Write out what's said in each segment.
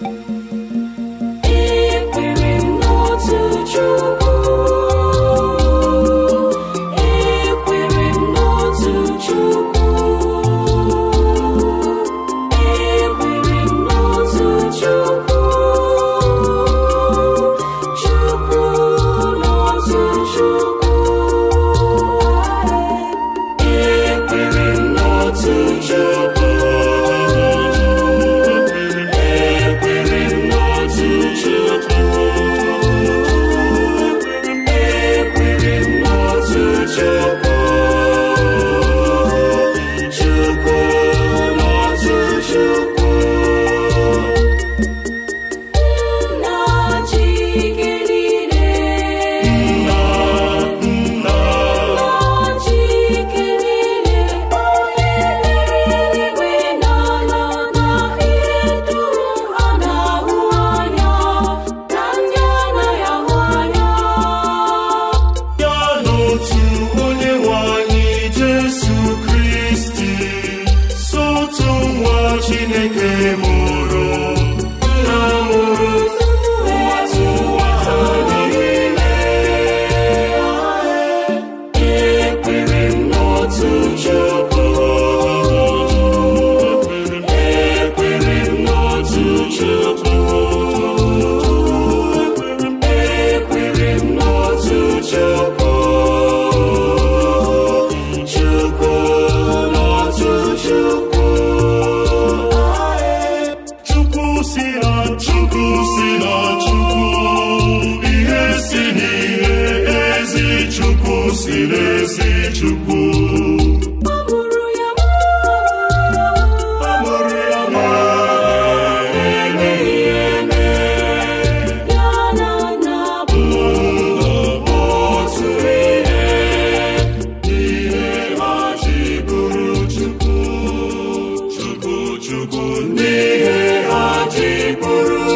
Música si n'ezi chukwu si n'ezi chukwu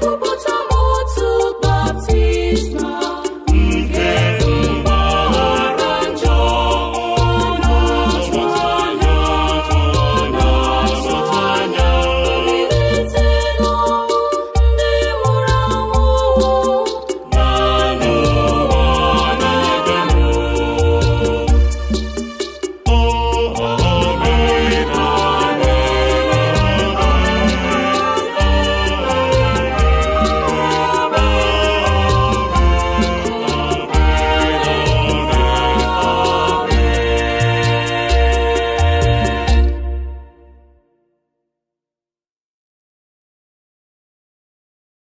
Bye.